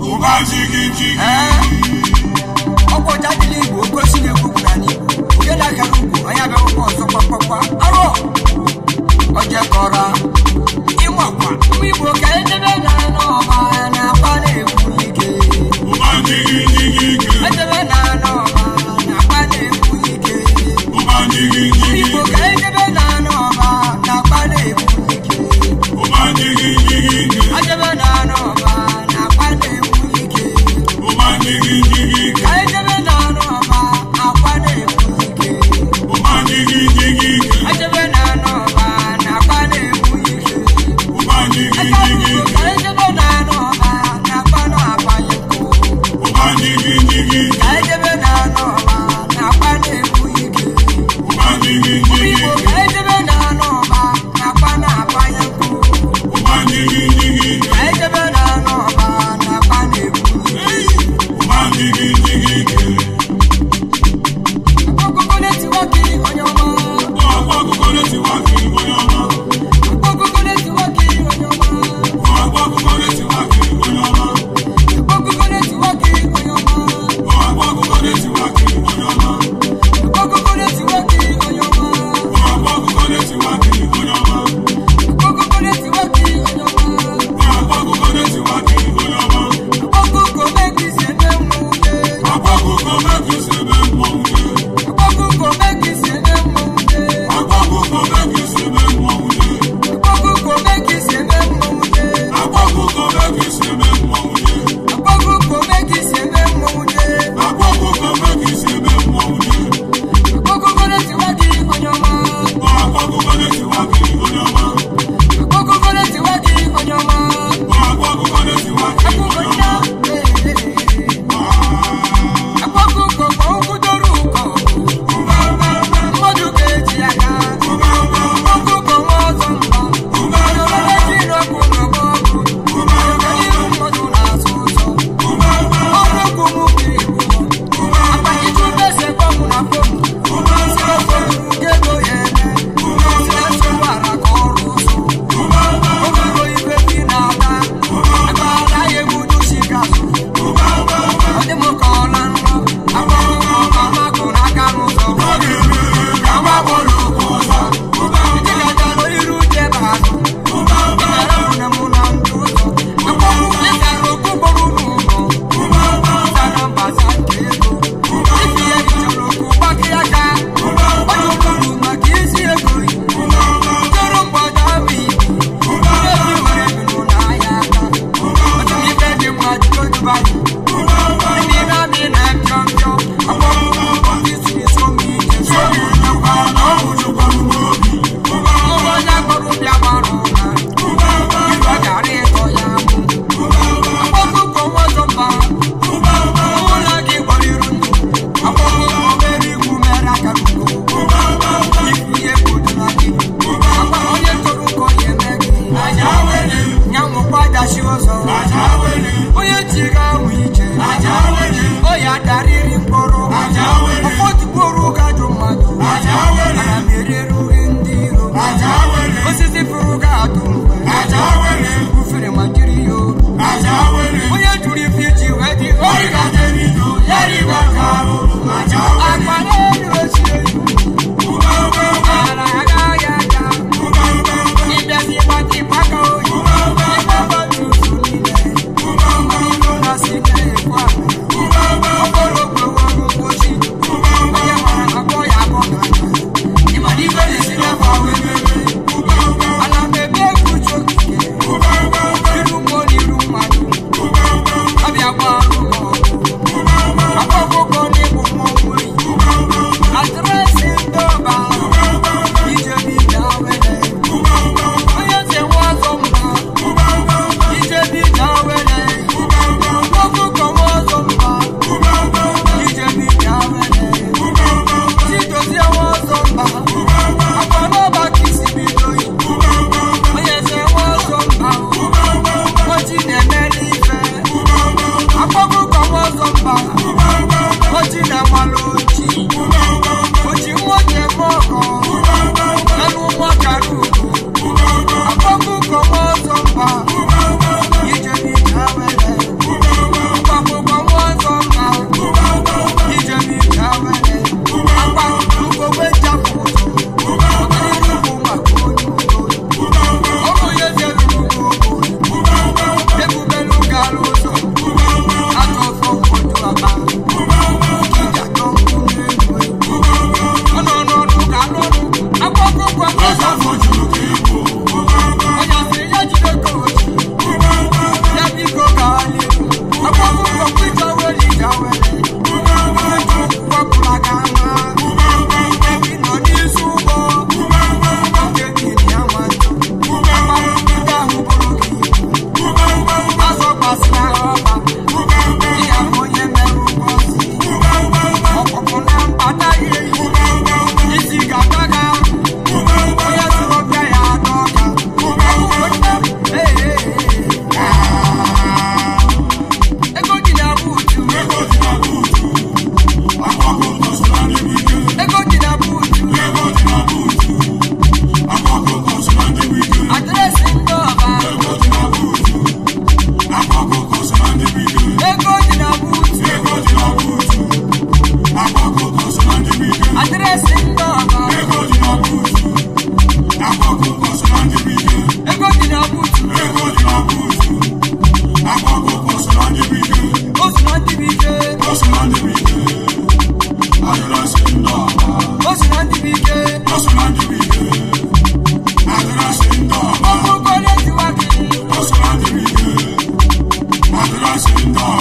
Ó bá jigi jigi. Ọkọ̀ jáde ní Igbo, ogo si na-ekwu kwuru anyị Igbo. Onye na-agara ugwu, onye abịa ụkwụ ọzọ kpakpakpa. Arọ! Ọjẹ kọra. Ịmakwa, ụmụ Igbo ka edebe na n'ọba na-akpa na-ekwu ike. Ó jigi jigi. You.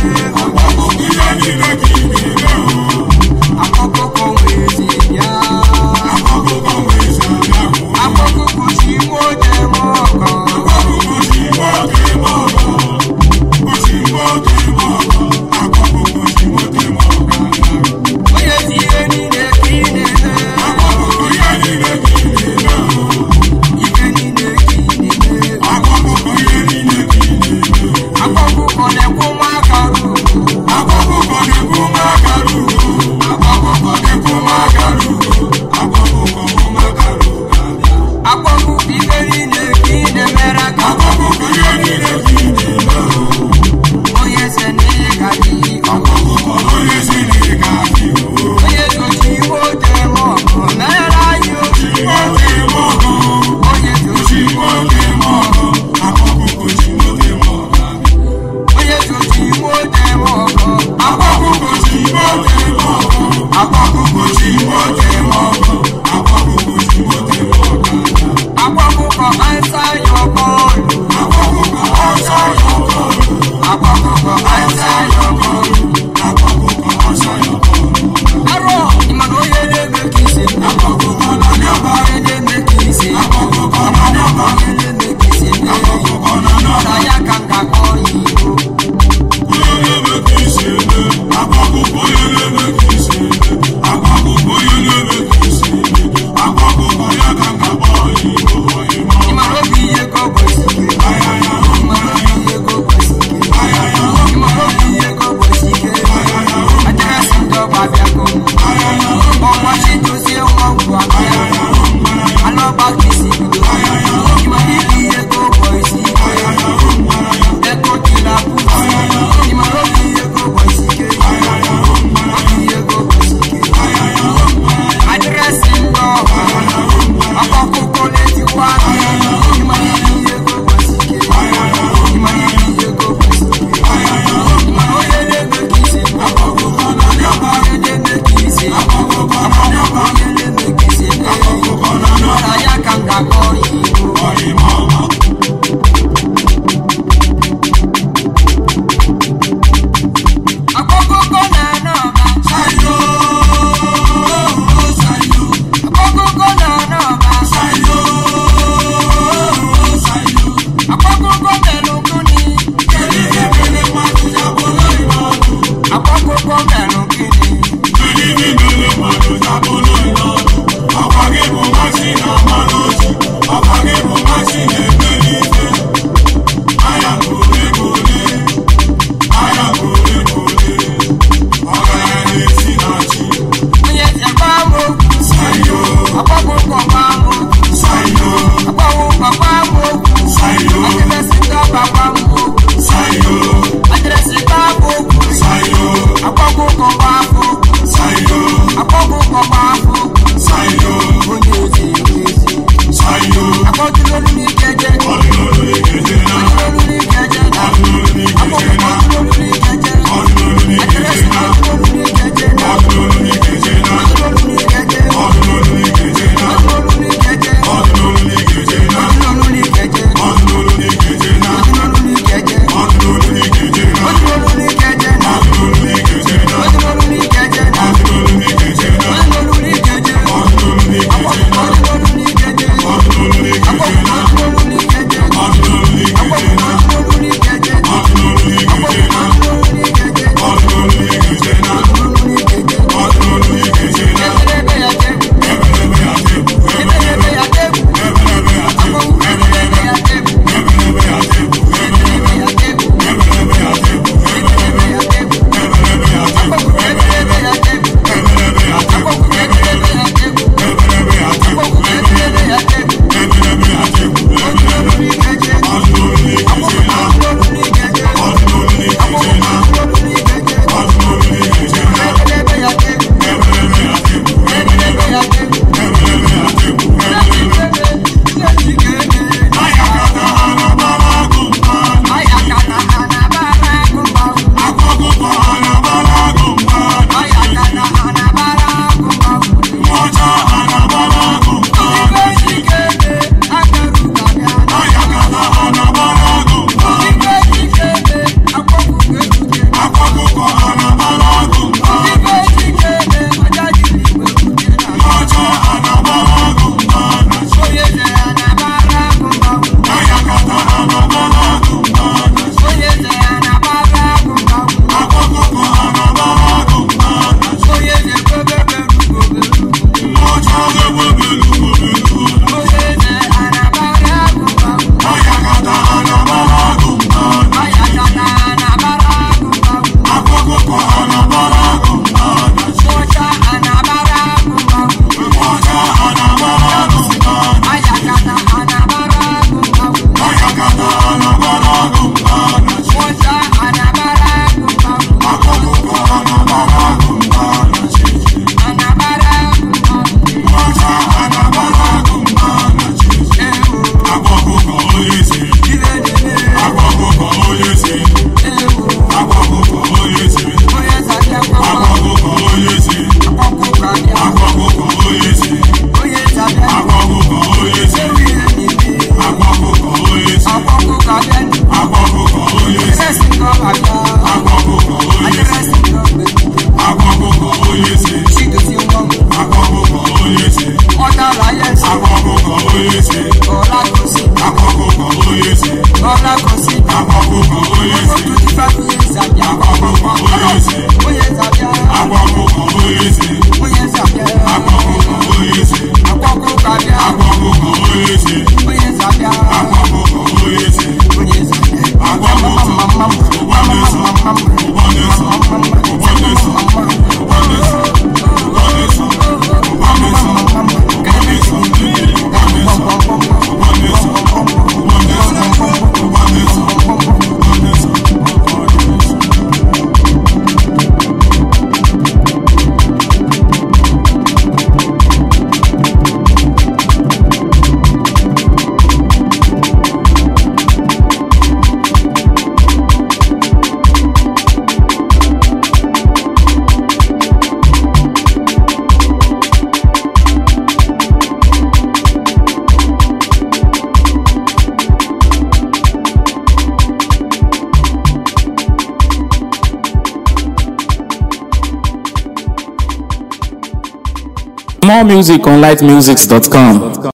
Thank you. more music on lightmusics.com.